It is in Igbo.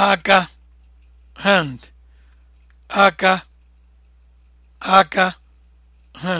aka hand aka aka hand